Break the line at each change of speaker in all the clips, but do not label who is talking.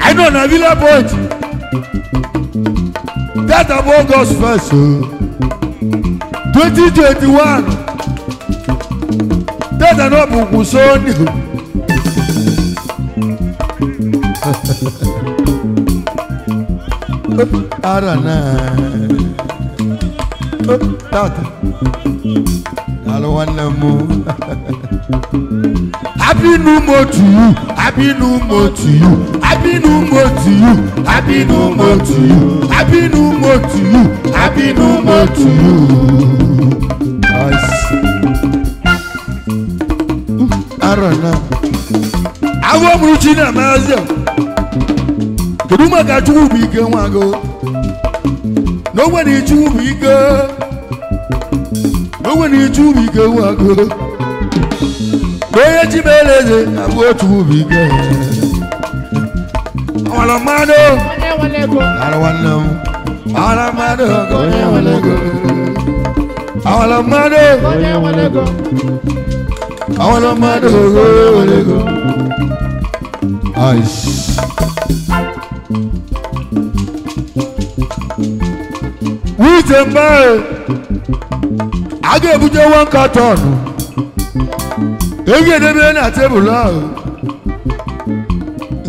I know na villa point. That of August first, oh. twenty twenty one. That of Obunkun Sunday. Ara náà alụwanne m abinu mo to you abinu mo to you abinu mo to you abinu mo to you abinu mo to you abinu mo to you nice mm, arana agwọ mụrụ chi na mazia kedu maka chukwu bụ ike nwa gị na o nwere chukwu bụ ike Mwenye chubike wako Mwenye chibeleze Mwenye chubike Wala mano Wala wala Wala mano Wala wala Wala mano Wala wala Wala mano Wala wala Aish Wite mbae a ga-ebunye one carton ehi edebe na tebụl ahụ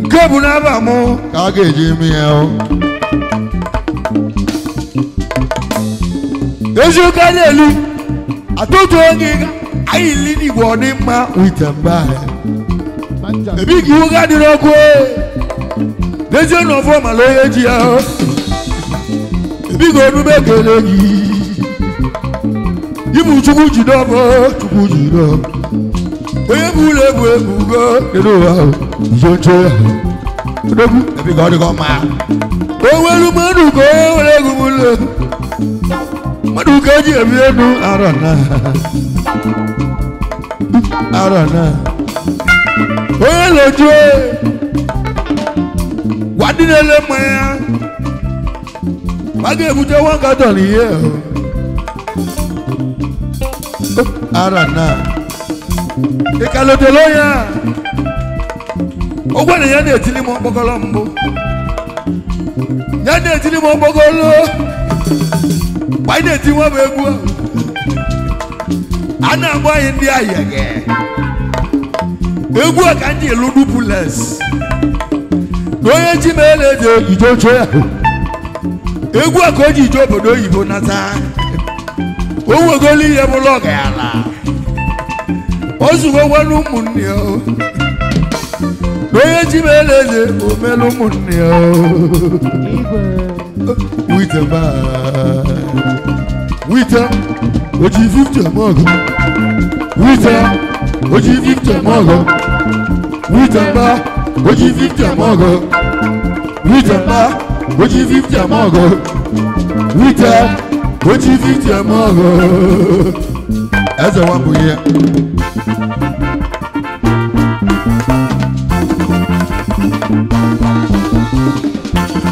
nke bụ n'aba mụ ka a ga-eji mee. ya eziokwu a na-elu atụtụ onye anyị ili n'igbo ọdịmma wite mba ebi ka iwu ga dị n'ọkụ dezie e. n'ọfọ mala onye ji ya ebi ka onume ekele gị imuchukwu jidọba chukwu jidọba onye bụ ụlọ egwu egwu kedu ụwa izo nche ya odogwu ebiga ọ dịgo mma o nwere mmadụ ka o nwere egwu ụlọ egwu mmadụ ka eji ebi elu arọ na arọ na onye na-eju gwa dị n'ele mmanya ya ma ga-ebute nwa nkatọ n'ihe ahụ arana ịkalotele onye a Ụgbọ na ya na-etili m okpokolo mbụ ya na-etili m okpokolo anyị na-eti nwa bụ egwu a na-agba anyị ndị ahịa gị egwu a ka ndị elu dupules onye ji ma ele dị ijojo ya egwu a ka o ji ije obodo oyibo nata owegolu ihe m lọgara ozugo nwere ụmụnne ya na onye ji m ele eze o ụmụnne ya wite m wite oji 50 m ọgụ oji 50 m ọgụ wite oji 50 m ọgụ wite oji 50 m ọgụ wite o ji ife iji eze wapụghị ya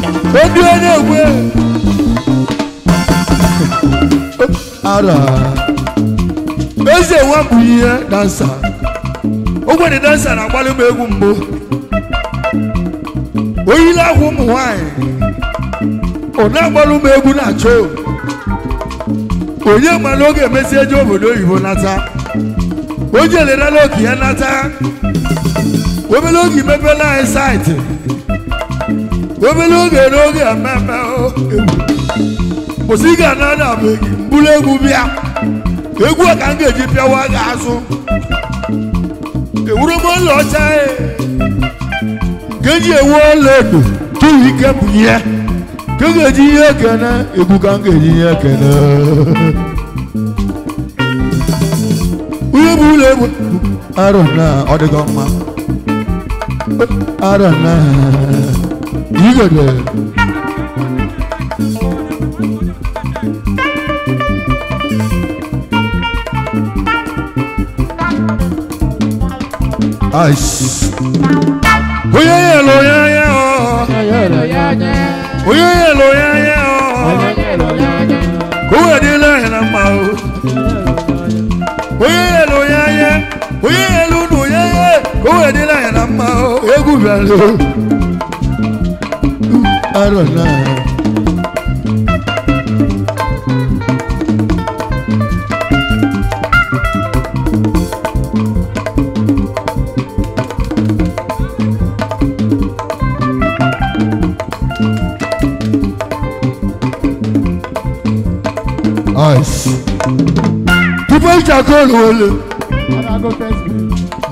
obi onye egwe ara eze wapụghị ihe dansa ogbenye dansa na-agbalị m egwu mbụ oyila akwa ụmụ nwanyị ọ na-agbalị m egwu na choo onye mara oge emesi obodo oyibo nata onye elerela oke ya nata obere oge imepela anyị saịtị obere oge n'oge ememe kwụsị ga na na mbụrụ egwu bịa egwu a ka m ga-eji pịawa gị azụ ewuru m ọcha e. nke eji ewu ọla edo tụrụ ike bụ ihe kankeji ihe kene egwu ka nkeji ihe kene onye bụ ụlọ egwu arọ na ọ dịgo mma arọ na igede onye oyeye lo yẹyẹ o kówèdí lẹ́yìn ma o oyeye lo yẹyẹ oyeye lunu yẹyẹ kówèdí lẹ́yìn ma o egúfẹ́ lo arọ̀ náà. voice. People can go lole.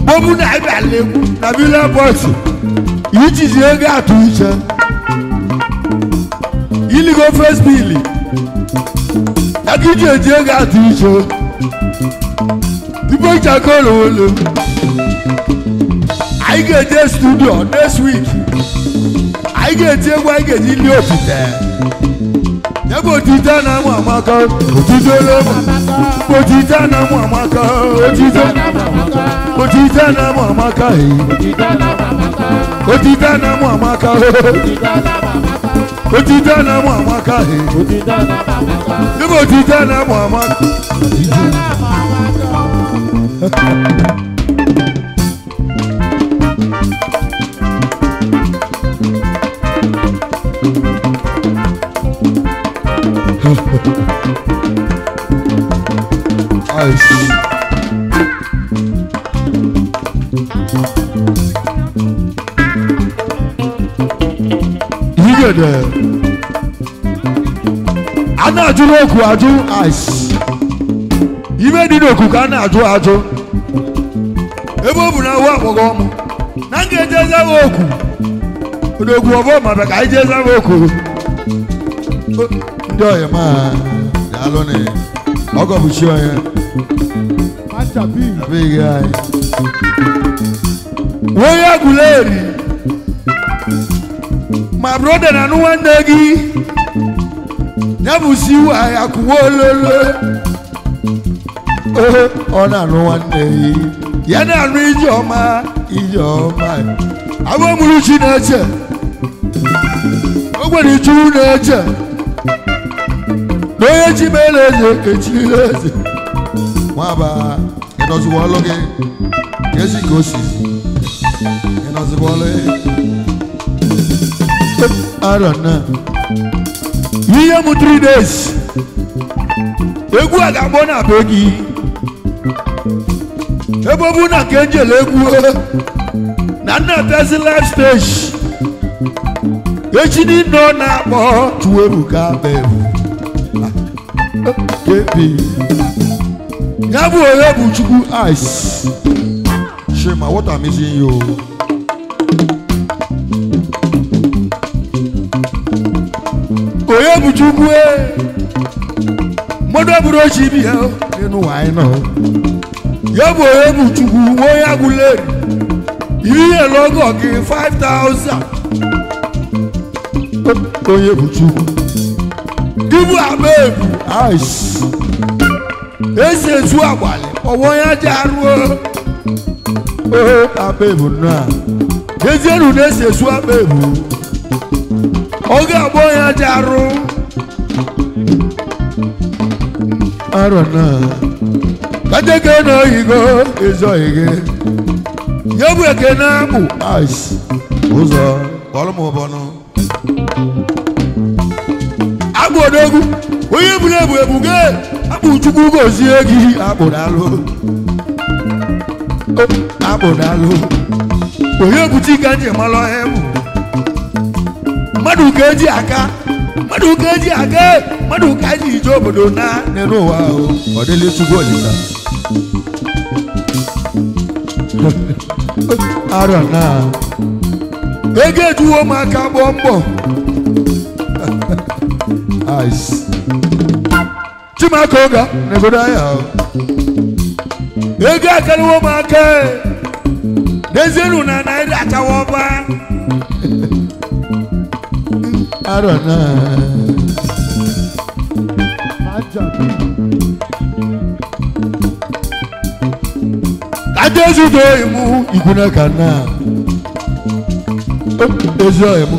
Bomu na ibe aleku na bi le voice. Which is the area to each. Ili go first bill. Akiji eje area to each. People can go lole. I get the studio next week. I get the I get the little bit there. Ebo tita na mu amaka, otito lo mu. Bo tita na mu amaka, otito. Bo tita na mu amaka, otita na mu amaka, otita na mu amaka, ebo tita na mu amaka. Ice. dẹ ana adu n'oku adu ice ime dị n'oku ka ana adu adu ebe ọ bụ na awa akpọgọ ọmụ na nga eje ezaghị oku n'oku ọbọ ma ka anyị je ezaghị ndị ọya ma daalụ na ọgọ bụ chi ọya abịghị anyị onye guleri ma broda na anụ nwanne gị ya bụ si anyị akụwa ololo ọ na-anụ nwanne gị ya na-anụ ọma ijeọma ọma. agwa mụrụ chi na-eche o nwere ichu na-eche onye chibere eze kechiri eze nwaba ịnọziwa ọlụ gị ezi ka o si ịnọziwa ọlụ arọna ihe m 3 days egwu a ga-agbọ na be gị ebe ọ egwu na nna tezi live stage echi ni ọ na-akpọ Chukwuebuka Abel Baby, yabu oyebu chukwu ice shema what I'm missing you. oyebu chukwu e eh. mọdọ buru ochi bi ya nínú wàá náà yabu oyebu chukwu wọ́n You lẹ́rìí logo lọ́gọ̀ kí five thousand oyebu chukwu. ibu agba ebu esi ezu agbalị ọwa ya ji arụo ee akpa ebu nnọọ ezienu na-esi ezu akpa ebu oge agba ya ji arụ arọ naa kajeke na oyigo ezoghị gị ya bụ ekene bụ ụzọ kpọrọ m ụbọ nọ. onye buru ebu ebuge gị chukwu gozie gị akpụrụ onye buchi ka ji ọhịa mmadụ ka eji aka mmadụ ka eji eji ije obodo na n'elu ụwa ahụ ọ dịla chukwu olisa ego ejuwo ụmụaka gbọọ mbọ eyes. Chimakoga Nebodaya. Ega kariwo make. Dezeru na naira atawoba. Arona. Adezu do imu iguna kana. Ezo imu.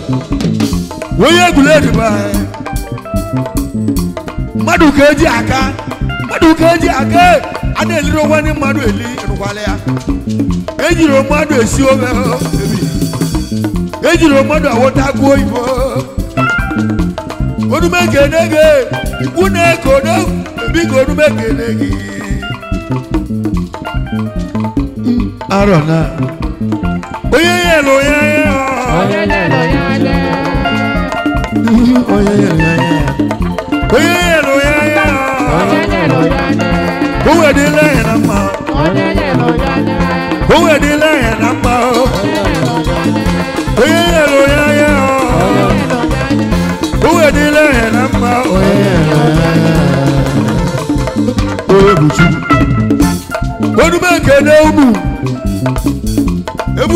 Wo ye gule di bai. mmadụ ka eji aka mmadụ ka eji aka a na-eliri onwe ndị mmadụ eli rụkwala ya ejiri mmadụ esi oge ejiri mmadụ awọta agụ oyibo onume kene gị ikwu na-eko biko onume kene gị hmm, arọ na onye ya onye ya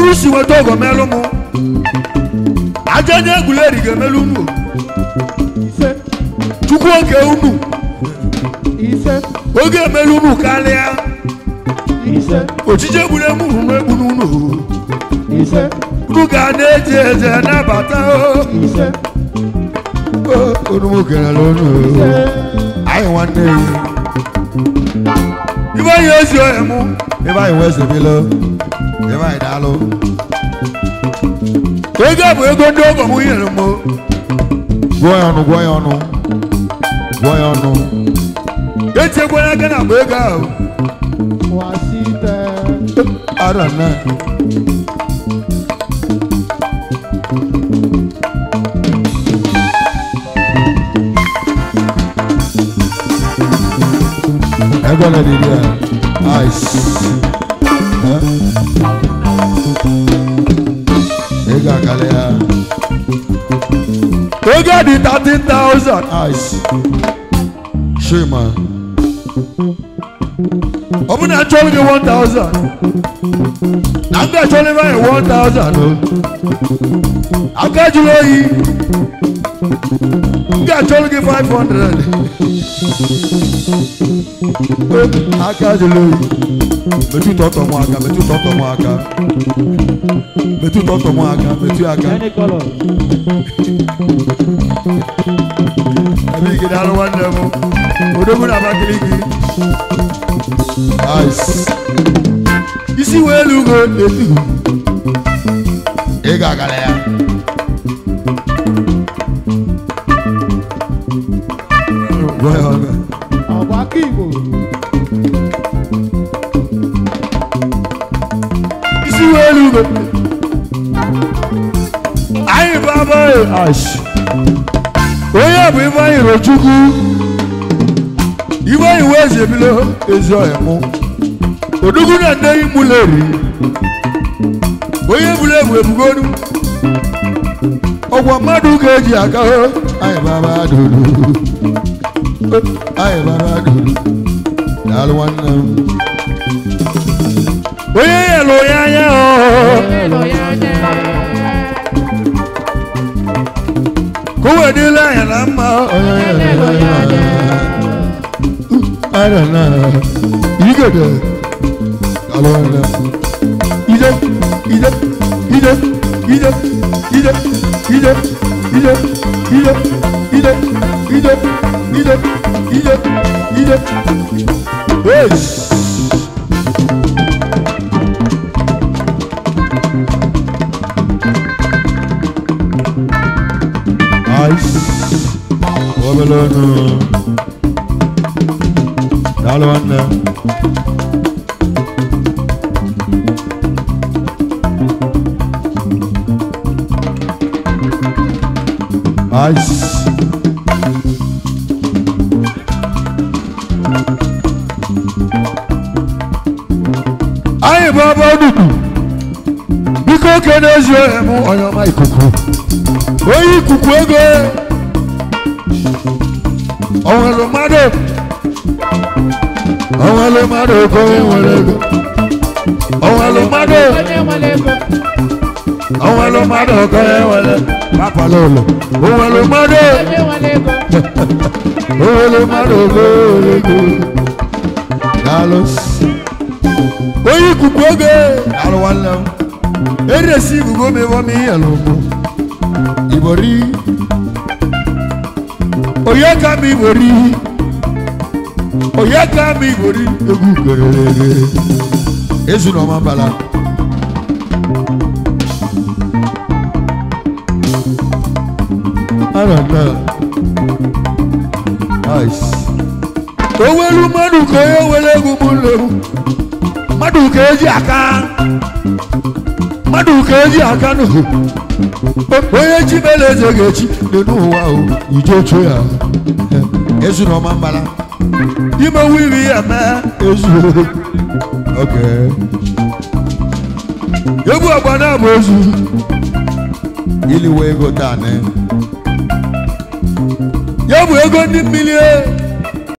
owu si weta ogo melụ mụ aja nye egwuleri ga-emelu unu chukwu oge unu oge emelu unu karịa ojije egwuregwu ruru egbu n'unu unu ga na-eje eje nabata onumu garala onu anyị nwanne ya ibe anyị ezi ohe mụ ebe anyị wee zebilo ebe anyị daalụ ego bụ ego ndị ọgọ m nyere m gụọ ya ọnụ gụọ ya ọnụ gụọ ya ọnụ echekwala aka na mgbe ego ahụ arana ẹgbọ́n náà lè rí ẹ àìsí. gbà kalẹ̀ ya. tó gẹ́ẹ̀dì thirteen thousand ice ṣé mà. ọmọdé àjọyọ̀ ní one thousand àgbẹ̀ àjọyọ̀ ní báyìí one thousand o àgbẹ̀ àjọyọ̀ yìí àgbẹ̀ àjọyọ̀ you five hundred àgbẹ̀ àjọyọ̀ yìí metụ ụtọ mụ aka metụ ụtọ mụ aka metụ ụtọ mụ aka metụ aka ebe ike daalụ nwanne m odogwu na Abakaliki isi wee elu ugo etu ị ga-agara ya Royal elugo anyị bụ abụghị ash onye bụ Ifeanyi Rochukwu Ifeanyi Weze ebilo ezi ọhịa mụ odugwu na ndeyi mụleri onye buru ebu ebugolu ọgwa mmadụ ga-eji aka anyị Baba abadolu anyị bụ abadolu daalụ nwanne m onye ya ya nílé yẹn là ń bọ̀. Ayọ̀ náà yí gèdè àlọ́ ẹ̀rọ. Ijó ijó ijó ijó ijó ijó ijó ijó ijó ijó ijó ijó ijó. Hey! Ogolo no. Dalo anna. Nice. Ayi baba dudu. Biko kene zwe mu oyo mai kuku. Oyi kuku ego. onwere mmadụ onwere mmadụ ego onye nwere ego onwere onye nwere akwala ụlọ onwere eresi Oyekami wòrí Oyekami wòrí egwu gererere ezu na ọma bala. Arada ice. Owelu mmadụ ka onye were egwu m Madu mmadụ ka eji aka mmadụ ka eji aka n'ohu onye chi mere eze ga-echi dị n'ụwa ujocho ya ezuru ọma mbala imewu iri ya na ezu egwu agba na abụ ezu iliwe ego taa ya bụ ego ndị mmiri e.